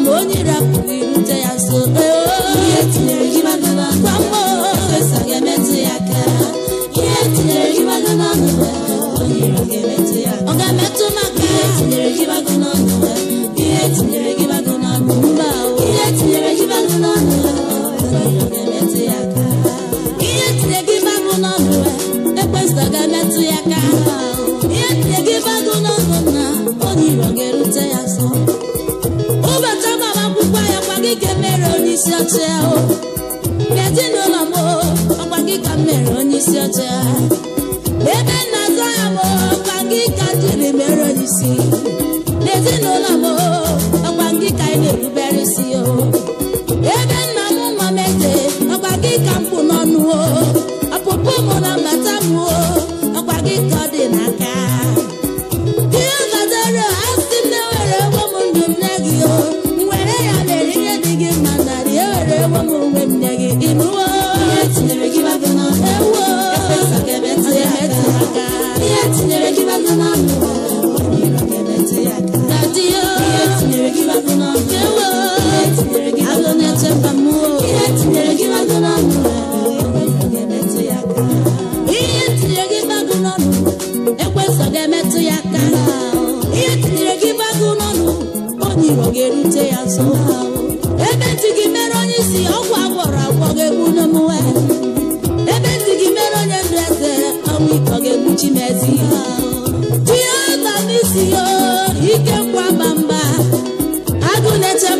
ma ma ebe ya gị mere onye isi ọgwụ agwọrọ agwọ ga-egbu n'omume ebe ntị gị mere onye ndụ eze ọnwụ ike ga ihe ike mba mba agụ na-eche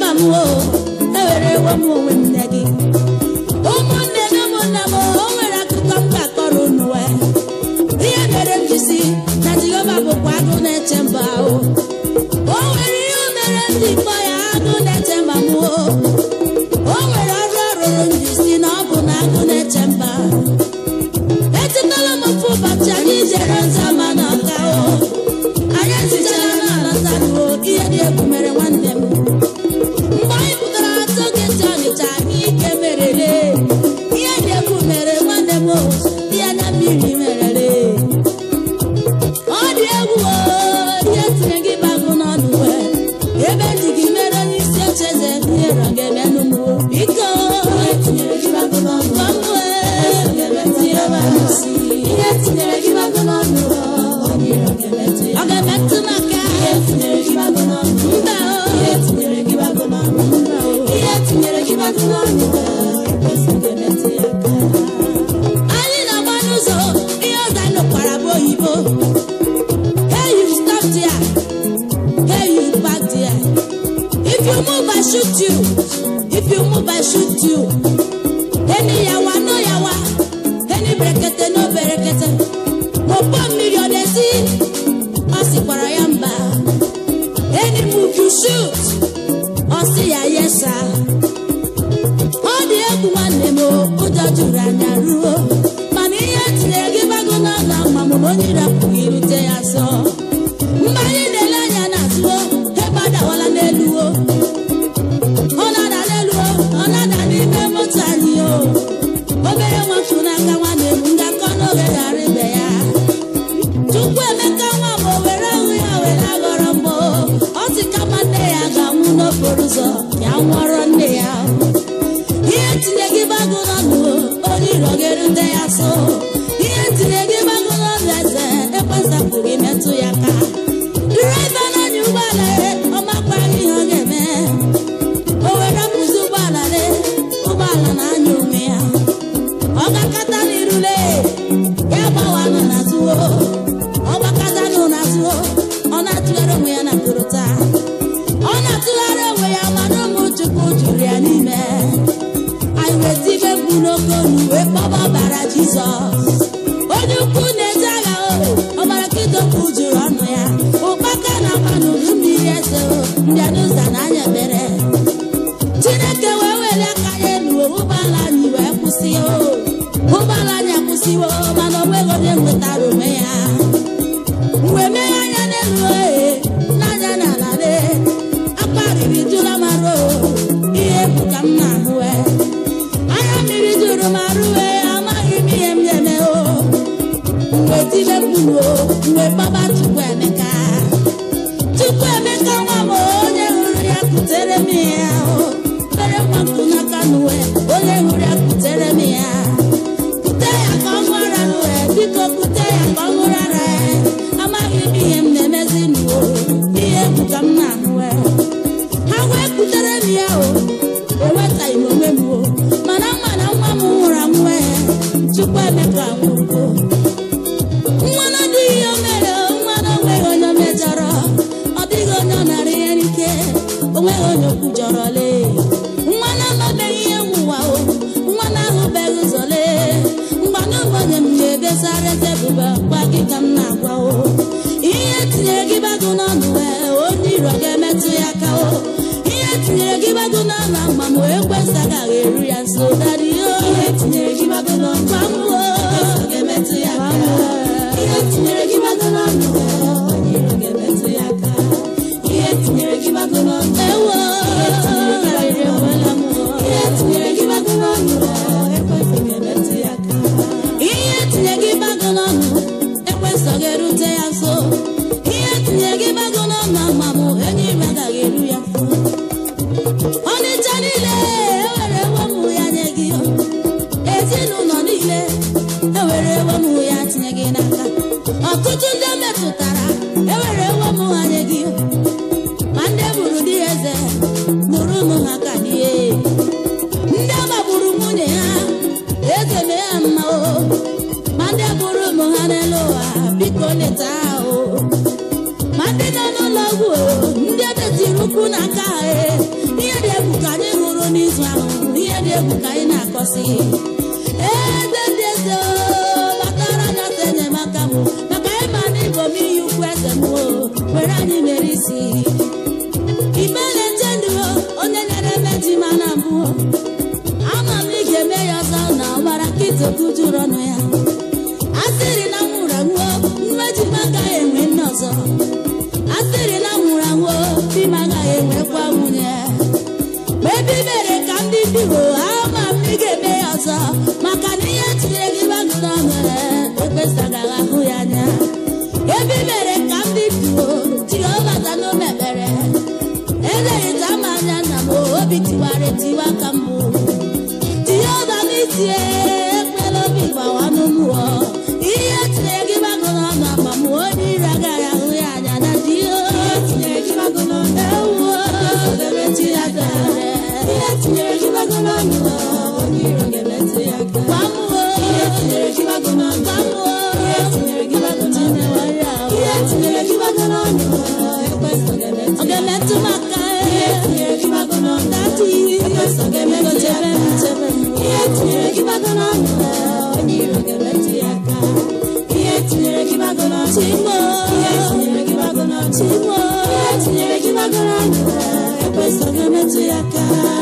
ewere ewe m onwe If you move, I shoot you. If you move, I shoot you. Any yawa, no yawa. Any brekete, no berekete. Opo mmiri ọ na-esi, ọ sịkwara ya mba. Eni move you shoot, ọ sị ya yesa. Ọ dị egwu nwanne m, ụjọ juru anya ruo. Mana ihe tinyere gị bago n'ọla ma mụ na onye gị irute ya zọ. agụnọ nụ onye rọgere ndị ya so obi tiwara etiwa ka mbụ n'itie ya aka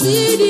see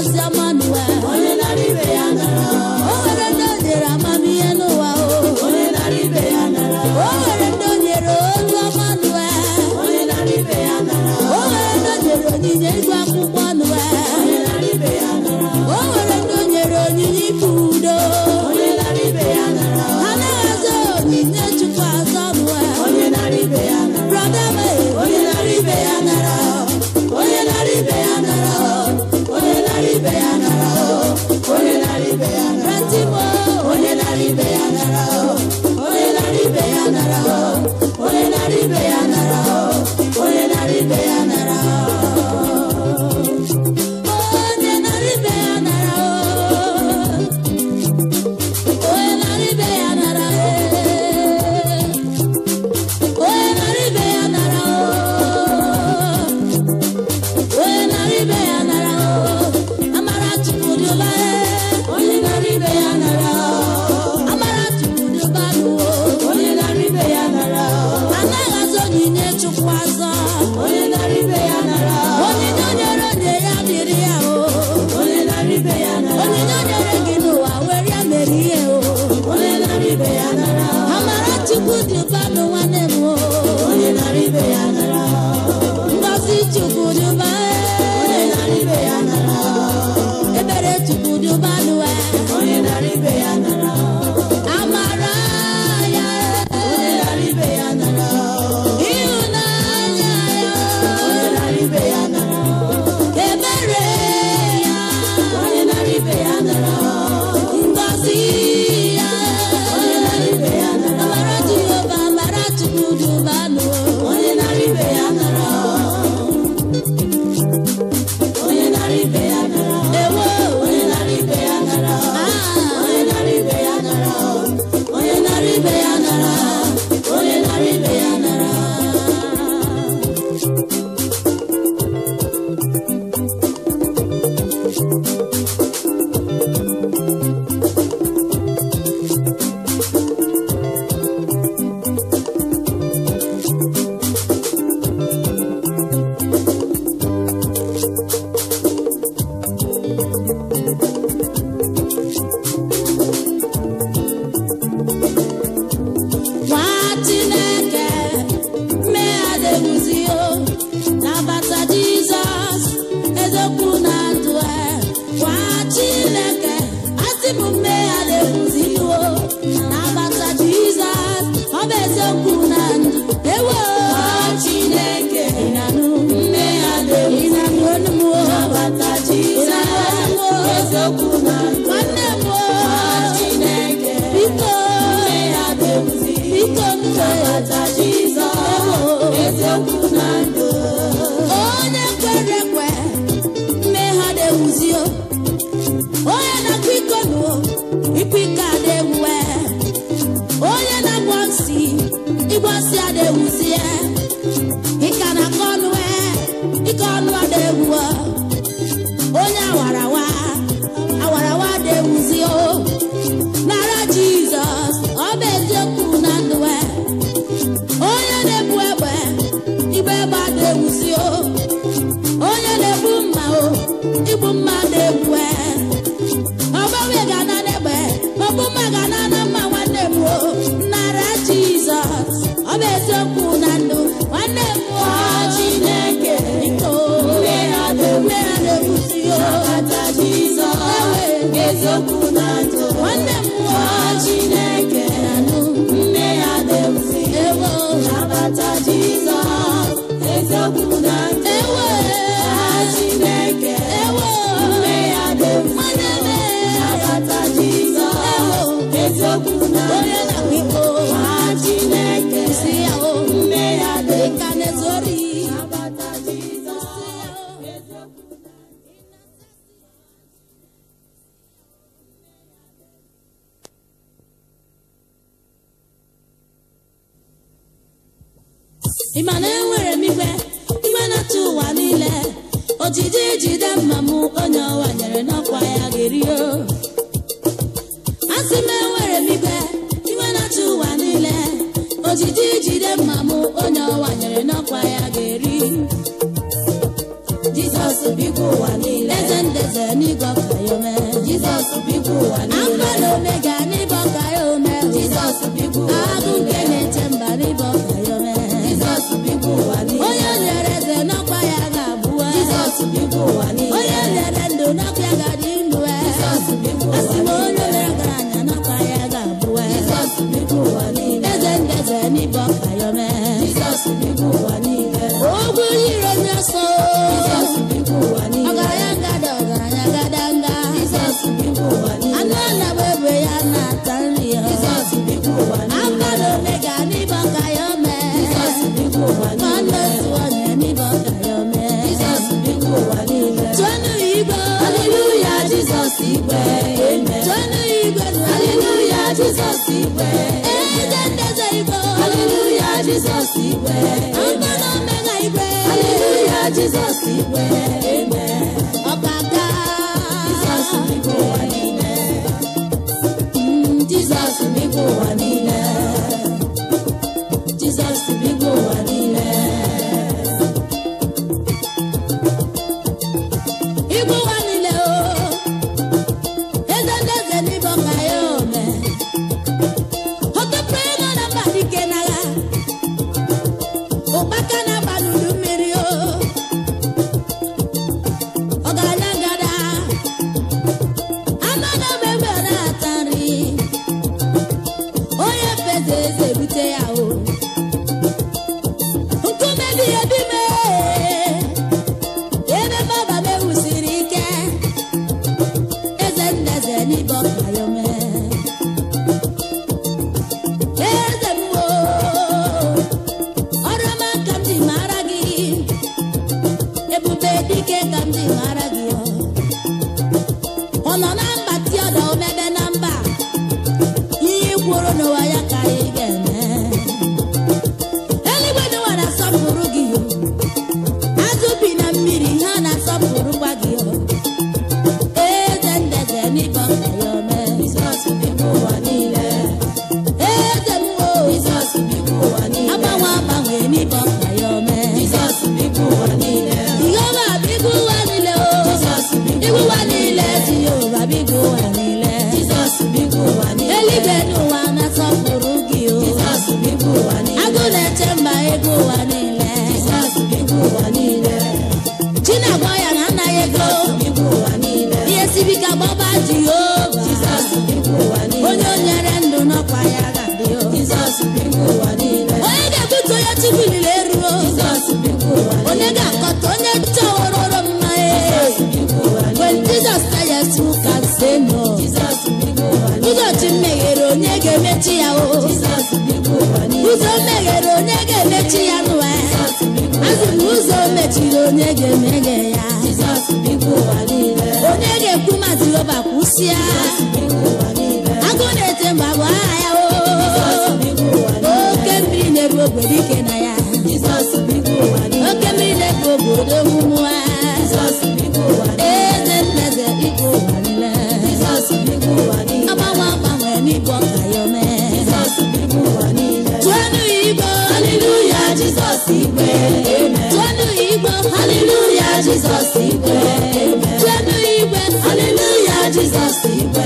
ezi Let wa. ị ma na enwere m igwe igwe na ụwa niile ojiji jide mma m onye ọwa nyere n'ọkwa ya ga-erio asị m enwere m igwe igwe na ụwa niile ojiji jide mma m onye ọwa nyere n'ọkwa ya ga-eri Jizọs biko ụwa niile eze ndeze n'ịgọ ka ya ome Jizọs biko ụwa niile Alfa ome Omega n'ịbọ ka ya Jesus igwe Jizọs ga ụzọ meghere onye ga-emechi ya n'ụwa ya ụzọ mechiri onye ga-emeghe ya onye ga-ekwu ma kwụsịa agụ na-ete mgbe bụ aha ya oke mmiri na-eru ogwe dike na Jizọs igwe jenu igwe aleluya Jizọs igwe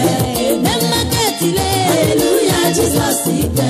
eme maketile aleluya Jizọs igwe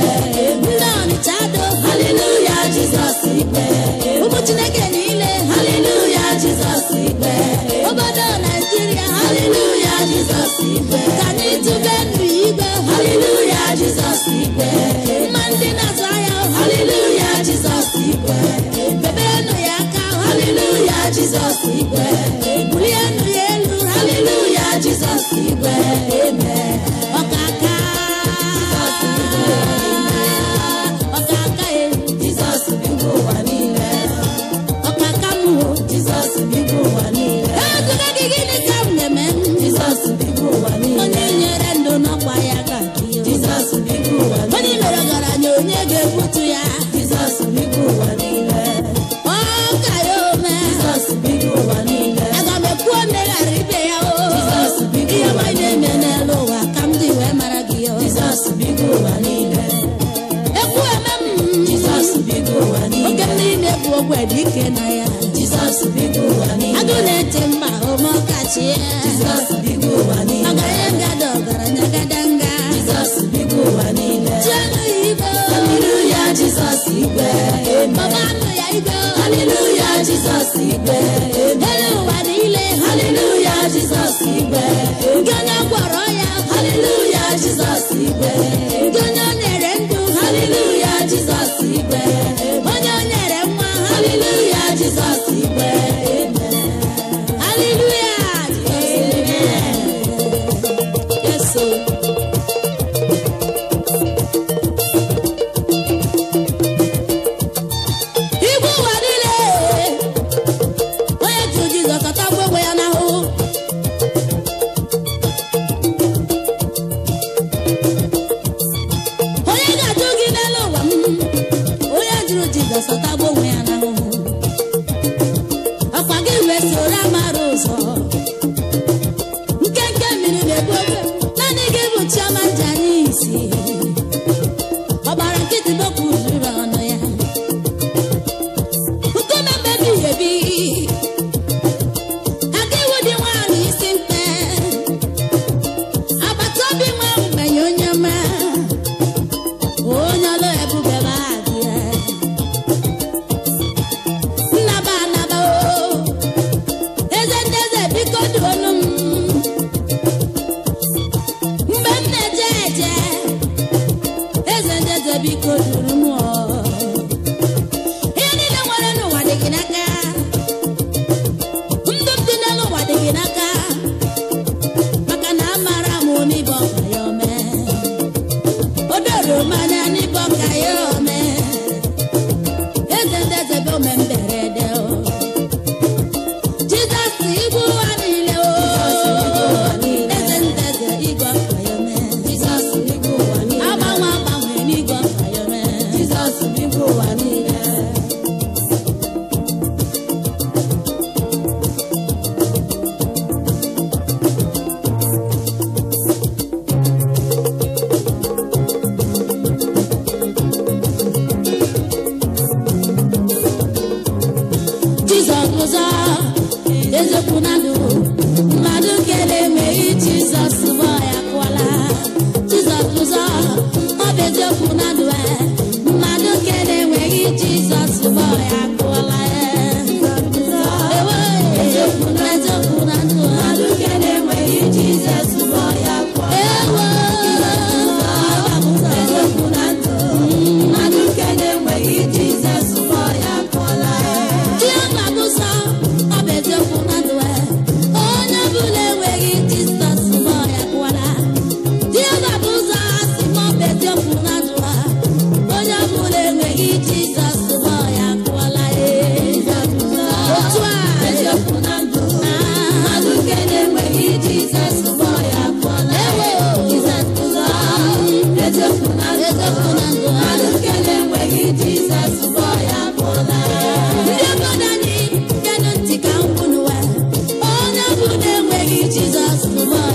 thank no man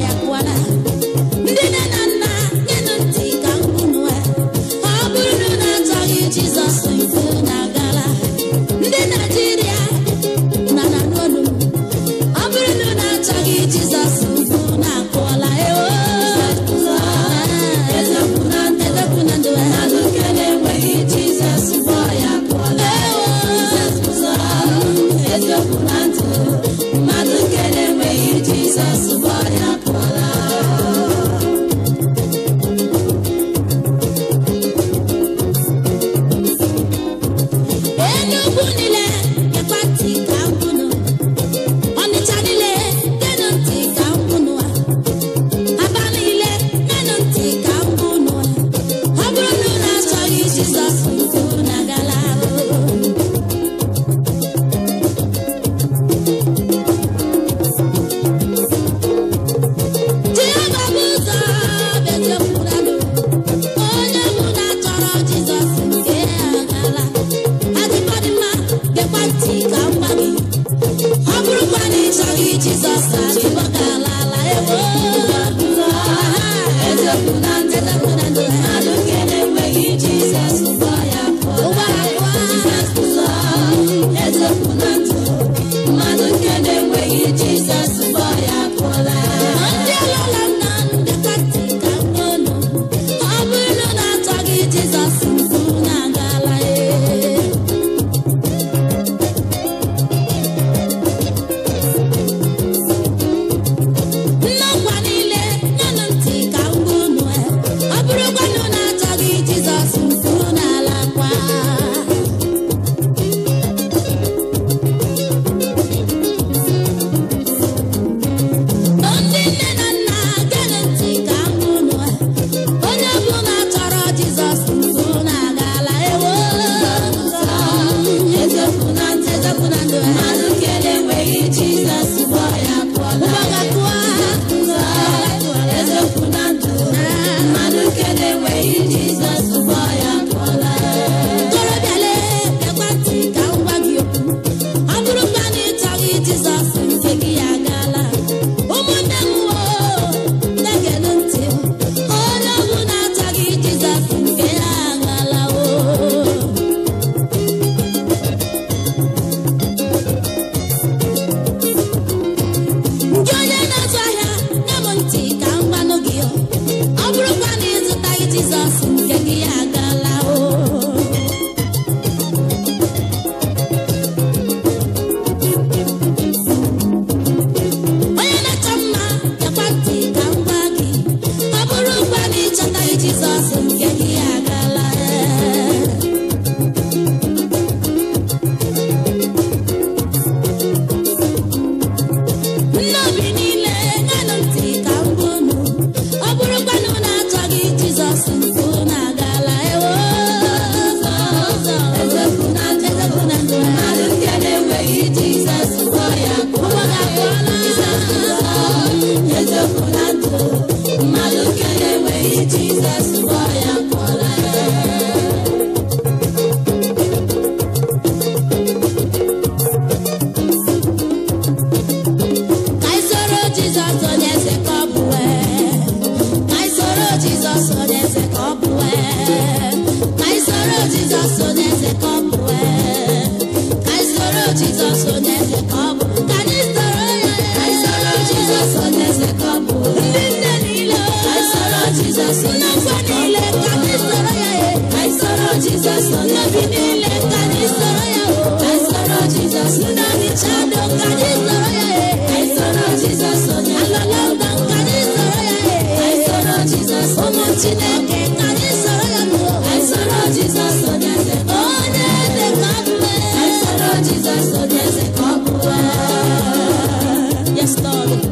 Stop.